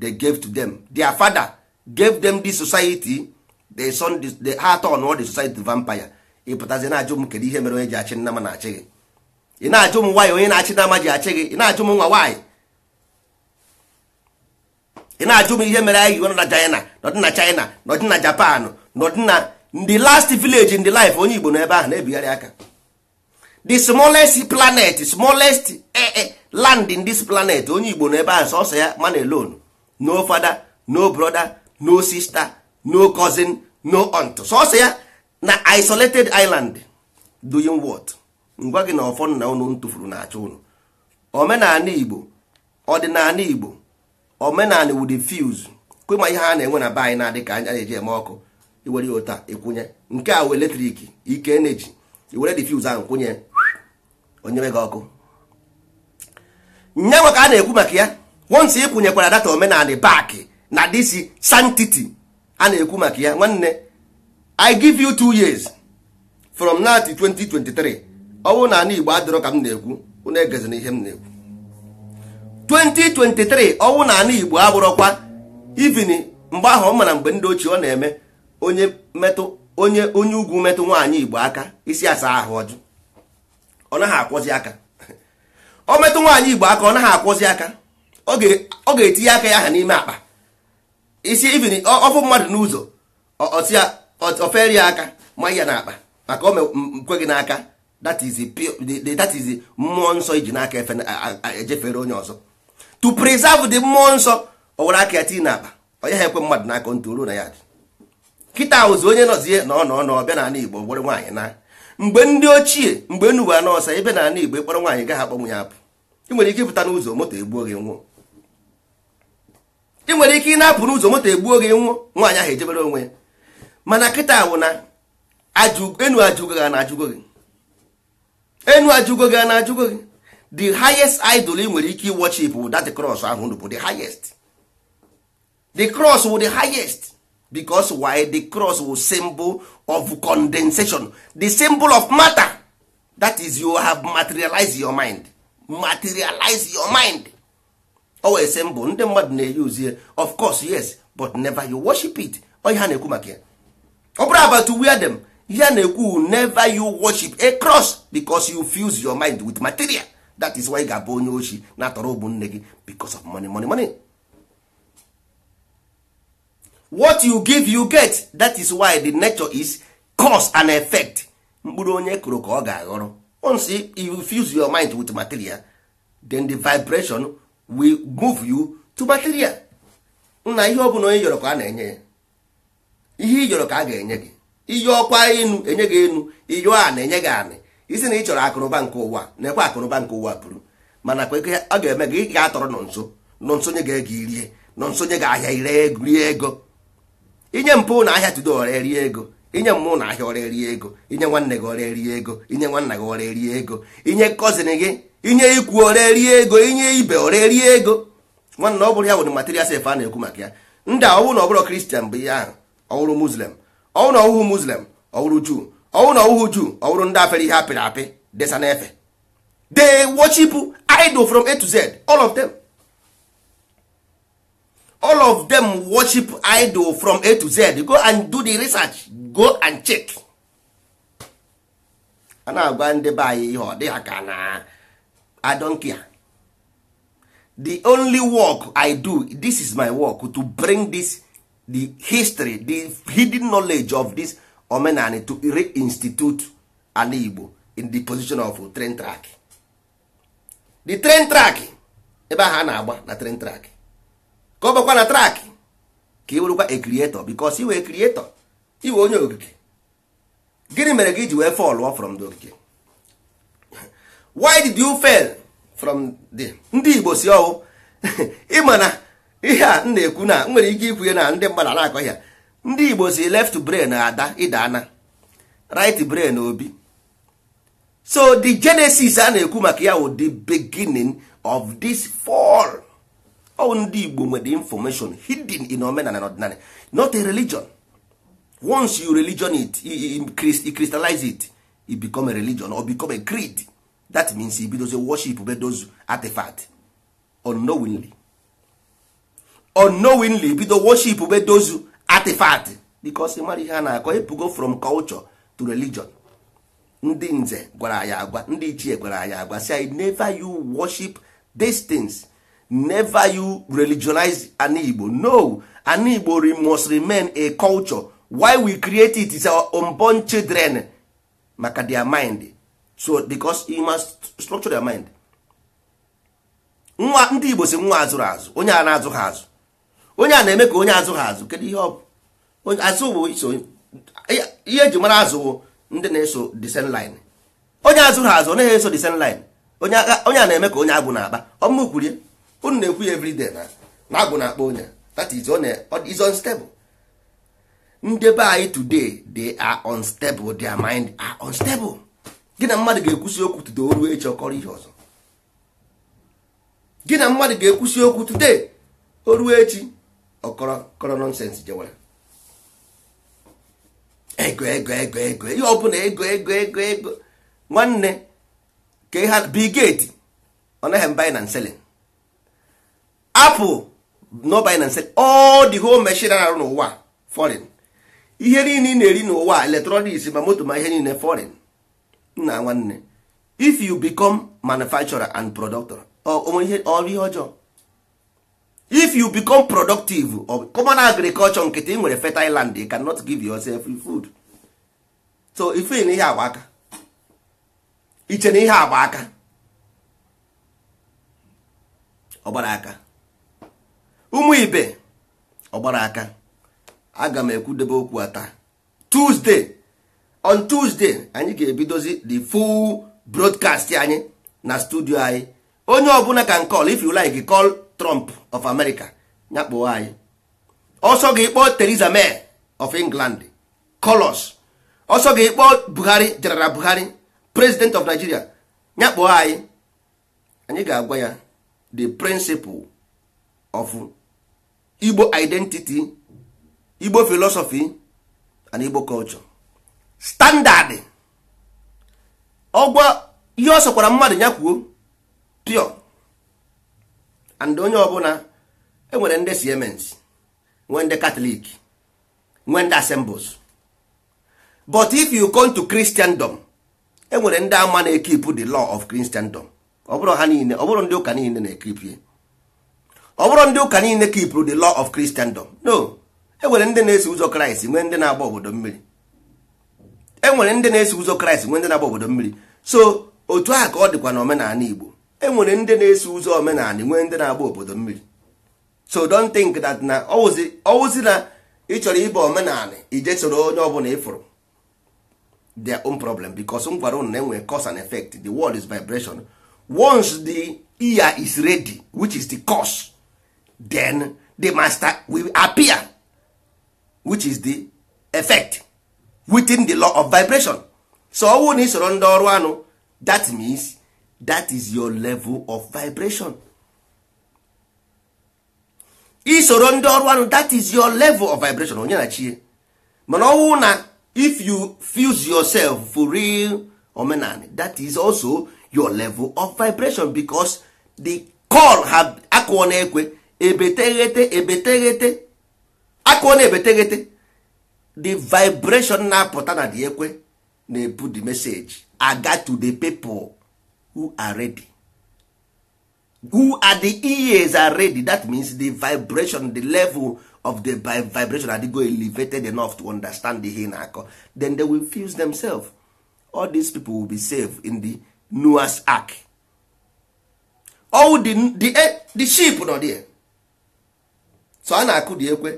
they gave to them their father gave them the society the son the heart on all the society vampire ịpụtazi na-ajụ m kedu ihe mere onye ji achị na-achị gị ị na-ajụ m nwaanyị onye na-achị ji achị gị ị na-ajụ m nwa nwaanyị ị na-ajụ m ihe mere anyị iwe nọ na China nọdị na China nọdị na Japan nọdị na ndị last village in the life onye Igbo ebe ahụ na-ebigharị aka the smallest planet smallest eh, eh, land in this planet onye Igbo ebe ahụ sọsọ ya man alone no father no brother no sister no cousin no aunt sọsọ ya na isolated island doing what ngwa gị na ọfọ na unu tụfuru na-achọ ụnụ omenala Igbo ọdịnala Igbo omenala wud kwa kwema ihe a na-enwe na be anyị na-adị ka anya na-eji eme ọkụ iwere ya ụta ịkwụnye nke a eletriki eletrik ike eneji iwere diffuse ahụ kwụnye onyere gị ọkụ nye ka a na-ekwu maka ya once ịkwụnyekwara data omenala baakị na disi santiti a na-ekwu maka ya nwanne i give you two years from now to 2023 ọ bụrụ na ana igbo adịrọ ka m na-ekwu unu egezina ihe m na-ekwu 2023 ọnwụ na anụ Igbo abụrọkwa ivin mgbe ahụ ọ mara mgbe ndị ochie ọ na-eme onye metụ onye onye ugwu metụ nwaanyị Igbo aka isi asa ahụ ọjụ ọ naghị akwọzi aka ọ metụ nwaanyị Igbo aka ọ naghị akwọzi aka ọ ga-etinye aka ya aha n'ime akpa isi ivin ọfụ mmadụ n'ụzọ ofere ya aka ma ya n'akpa maka o gị n'aka that is the mmụọ nsọ iji n'aka ejefere onye ọzọ to preserve the mmụọ nsọ ọ were aka ya tii n'akpa onye ha ekwe mmadụ n'aka ntụ ruo na ya dị kịta ahụzi onye nọzie na ọ nọ n'ọbịa n'ala Igbo gbọrọ nwaanyị na mgbe ndị ochie mgbe enuwe anọọsa ebe n'ala Igbo ịkpọrọ nwaanyị gaghị akpọnwụ ya apụ ị nwere ike ịpụta n'ụzọ moto egbuo gị nwụọ ị nwere ike ị na-apụ n'ụzọ moto egbuo gị nwụọ nwaanyị ahụ ejebere onwe ya mana kịta wụ na enu ajụgo gị na ajụgo gị the highest idol ị nwere ike worship bụ that cross ahụ bụ the highest the cross will the highest because why the cross was symbol of condensation the symbol of matter that is you have materialized your mind materialize your mind owe symbol ndị mmadụ of course yes but never you worship it Oh, ha na-ekwu maka ya ọ bụrụ about to wear them ihe na-ekwu never you worship a cross because you fuse your mind with material that is why ị ga-abụ onye ochi na-atọrọ ụmụnne nne gị because of money money money what you give you get that is why the nature is cause and effect mkpụrụ onye kụrụ ka ọ ga-aghọrọ once you fuse your mind with material then the vibration will move you to material na ihe ọ bụla onye yọrọ ka a na-enye ya ihe ị yọrọ ka a ga-enye gị iyọ ọkwa enu enye gị enu iyọ a na-enye gị anị isi na ị chọrọ akụrụba nke ụwa na-ekwe akụrụba nke ụwa bụrụ mana kwa ọ ga-eme gị ga-atọrọ nọ nso nọ nsonye ga-ege irie nọ nsonye ga-ahịa ire rie ego inye mpụ na ahịa tudo ọrịa rie ego inye mmụ na ahịa ọrịa rie ego inye nwanne gị ọrịa rie ego inye nwanna gị ọrịa rie ego inye kọzin gị inye ikwu ọrịa rie ego inye ibe ọrịa rie ego nwanna ọ bụrụ ya nwere material sef a na-ekwu maka ya ndị ọwụ ọ na ọ bụrụ kristian bụ ihe ahụ ọ bụrụ muslim ọ juu ọwụ na ọwụhụ juu ọwụrụ ndị afere ihe apịrị apị desa n'efe they worship idol from a to z all of them all of them worship idol from a to z go and do the research go and check a na-agwa ndị be anyị ihe ọ dị ha na I don't care the only work I do this is my work to bring this the history the hidden knowledge of this omenani to reinstitute ala igbo in the position of train track the train track ebe ahụ a na-agba na train track ka ọ bụkwa na track ka ị werụkwa a creator because iwe creator iwe onye ogige gịnị mere gị iji wee fall from the ogige why did you fail from the ndị igbo si ọwụ ịma na ihe a m na-ekwu na nwere ike ikwu ya na ndị mmadụ na-akọ ya ndị igbo si left brain ada Ana. right brain obi so the genesis a na-ekwu maka ya wụ the beginning of this fall all ndị igbo nwere information hidden in omenala and ọdịnala not a religion once you religion it you crystallize it it become a religion or become a creed that means you those worship be those artifact unknowingly unknowingly those worship be those artifact because mara ihe a na-akọ ebugo from culture to religion ndị nze gwara ya agwa ndị ichie gwara ya agwa i never you worship these things never you religionize an Igbo no an Igbo must remain a culture why we create it is our unborn children maka their mind so because you must structure their mind nwa ndị Igbo si nwa azụrụ azụ onye a na-azụ ha azụ onye a na-eme ka onye azụ ha azụ kedu ihe ọ bụ azụ bụ iso ihe eji mara azụ bụ ndị na-eso disen line onye azụ ha azụ naghị eso disen line onye a na-eme ka onye agwụ na-akpa ọmụ kwurie unu na-ekwu ya everyday na na agwụ na-akpa onye that is is unstable ndị be anyị today they are unstable their mind are unstable gị na mmadụ ga-ekwusi okwu today o ruo echi ọkọrọ ihe ọzọ gị na mmadụ ga-ekwusi okwu today o ruo echi ọkọrọ nọnsens jewara ego ego ego ego ihe ego ego ego ego ego nwanne ka ha ego ọ naghị ego na nselin apụl ego ego ego the hol ego arụ n'ụwa ego ihe niile ị na-eri n'ụwa ego ma moto ma ihe niile forin nna nwanne if you become manufacturer and productor ọ ihe ọjọọ if you become productive of common agriculture nkịtị ị nwere fertile land you cannot give yourself free food so ife na ihe agba aka iche na ihe agba aka ọgbara aka ụmụ ibe ọgbara aka aga m ekwudebe okwu a taa tuesday on tuesday anyị ga-ebidozi the full broadcast anyị na studio anyị onye ọbụla can call if you like call trump of America nyakpụo anyị ọsọ gị kpọọ teresa May of England Colors ọsọ gị kpọọ Buhari General Buhari President of Nigeria nyakpụo anyị anyị ga-agwa ya the principle of Igbo identity Igbo philosophy and Igbo culture standard ọgwa ihe ọ sọkwara mmadụ nyakwuo pure and onye ọbụla enwere ndị siemens nwee ndị katọlik nwee ndị assembles but if you come to christendom enwere ndị ama na-ekip the law of christendom ọ bụrụ ha niile ọ bụrụ ndị ụka niile na-ekipie ọ bụrụ ndị ụka niile kipụrụ the law of christendom no enwere ndị na esi ụzọ kraịst nwee ndị na-agba obodo mmiri enwere ndị na esi ụzọ kraịst nwee ndị na-agba obodo mmiri so otu a ka ọ dịkwa na omenala igbo enwere ndị na-eso ụzọ omenala nwee ndị na-agba obodo mmiri so don't think that na ọwụzi na ị chọrọ ịba omenala ije soro onye ọbụla ịfụrụ their own problem because m gwara na enwere cause and effect the world is vibration once the ear is ready which is the cause then the master will appear which is the effect within the law of vibration so all na isoro ndị ọrụ anụ that means that is your level of vibration isoro ndị ọrụ anụ that is your level of vibration onye na chie mana ọnwụ na if you fuse yourself for real omenani that is also your level of vibration because the call ha akụọ na ekwe ebeteghete ebeteghete akụọ na ebeteghete the vibration na-apụta na dị ekwe na-ebu the message aga to the people who are ready who are the ears are ready that means the vibration the level of the vibration go elevated enough to understand the ihe ako then they will fuse themselves all these people will be saved in the Noah's ark all oh, the, the, eh, the sheep nọ there so a na-akụ dị ekwe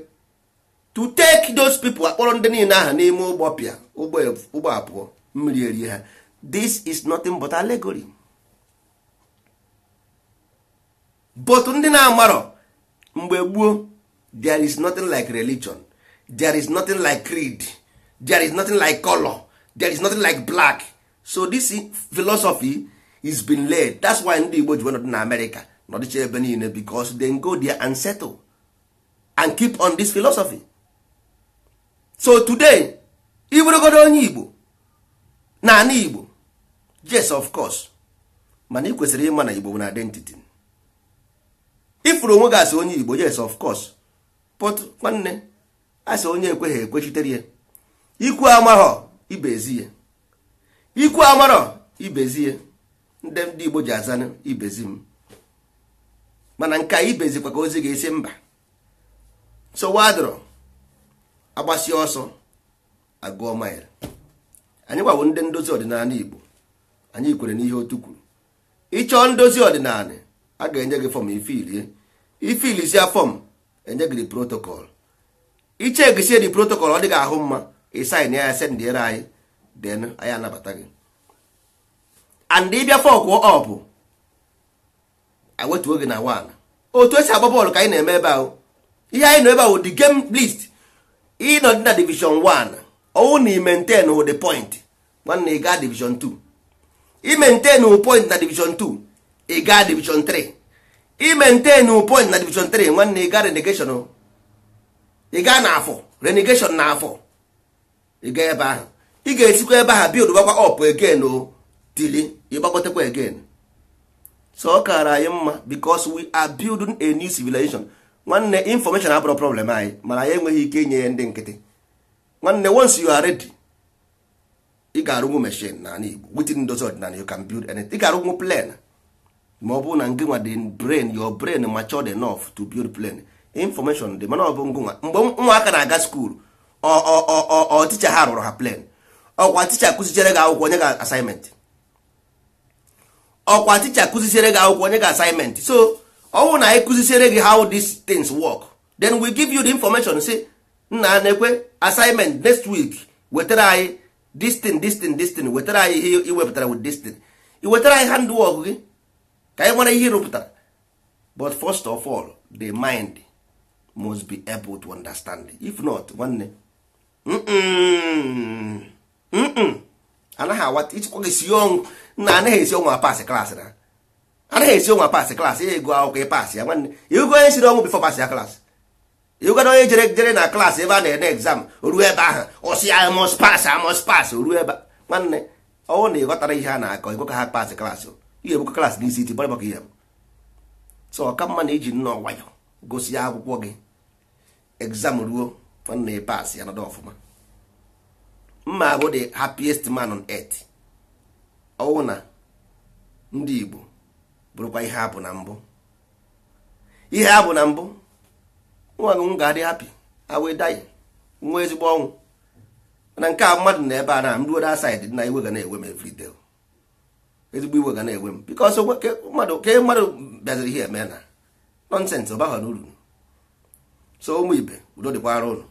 to take those people akpọrọ ndị niile aha n'ime ụgbọ pịa ụgbọ abụọ mmiri ha this is nothing but allegory. but ndị na-amarọ mgbe there is nothing like religion there is nothing like creed there is nothing like color there is nothing like black so this philosophy is been laid that's why ndị igbo ji nọdụ na america nọdịcha ebe niile because they go there and settle and keep on this philosophy so today iburogodo onye igbo na ana igbo yes of course mana ị kwesịrị ịma na igbo na identity ifuru onwe gị asị onye igbo yes of course but nwanne asị onye ekweghị ekwechitere ya ikwu amarọ ibezi ya ikwu amarọ ibezi ya ndị ndị igbo ji azanụ ibezi m mana nke a ibezikwa ka ozi ga-esi mba so wadro agbasie ọsọ agụọ mail anyị gbawo ndị ndozi ọdịnala igbo anyị kwere n'ihe otu kwuru ịchọọ ndozi ọdịnala a ga-enye gị fọm ife irie ifilisi ya fọm enye gị protocol ichegisie di protocol ọ dị gị ahụ mma ịsain ya sendịere anyị den anyị anabata gị and ịbịa fọkwụ ọpụ ewetuo gị na wan otu esi agba bọọlụ ka anyị na-eme ebe ahụ ihe anyị nọ ebe ahụ di game list ịnọ dị na division 1 ọwụ na i maintain point nwanne ị gaa division 2 i maintain point na division 2 ị gaa division 3 i maintain point na division 3 nwanne ị gaa renegation ị gaa na afọ renegation na afọ ị gaa ebe ahụ ị ga-esikwa ebe ahụ build gbakwa up again o oh, tili ịgbagotekwa again so ọ kaara anyị mma because we are building a new civilization nwanne information abụrụ problem anyị mana anyị enweghị ike inye ya ndị nkịtị nwanne once you are ready ị ga-arụnwu machine na Igbo within those ordinary you can build anything ị ga-arụnwu plan ma ọ bụrụ na nke nwa dị brain your brain matured enough to build plan information dị mana ọ bụ ngụnwa mgbe nwaaka na-aga skuul ọ ticha ha rụrụ ha plan ọkwa ticha kụzichere gị akwụkwọ onye ga assignment ọkwa ticha kụzichere gị akwụkwọ onye ga assignment so ọ bụrụ na anyị kụzichere gị how these things work then we give you the information say nna na-ekwe assignment next week wetara anyị this distin distin thing wetara anyị ihe iwepụtara with this thing anyị handwork gị ka anyị nwere ihe rụpụtara but first of all the mind must be able to understand if not nwanne anaghị awata ịchịkwa gị si ọnwụ na anaghị esi ọnwụ apasị klaasị na anaghị esi ọnwụ apasị klaasị ya ego akwụkwọ ịpasị ya nwanne ịgụ onye siri ọnwụ bifọ pasị ya klaasị ịgụgana onye jere jere na klaasị ebe a na-ede egzam ruo ebe ahụ ọsị ya mos pas amos pas ruo ebe nwanne oh, ọnwụ na ịghọtara ihe a na-akọ ịgụ ka ha pasị klaasị ihe bụkwa klas n'isi iti bara maka ihe so ọka mma na iji nnọọ nwayọ gosi ya akwụkwọ gị exam ruo na ịpas ya nọdụ ọfụma mma abụ the happiest man on earth ọwụ na ndị Igbo bụrụkwa ihe abụ na mbụ ihe abụ na mbụ nwa gị m ga-adị hapi awe dayi nwa ezigbo ọnwụ na nke a mmadụ na ebe a na m ruo da said na iwe ga na-ewe m every day ezigbo iwe ga na enwe m bikọ mmadụ ke mmadụ bịaziri ihe eme na nọnsensị ọ baghọ n'uru so ụmụ ibe udo dịkwara ụlọ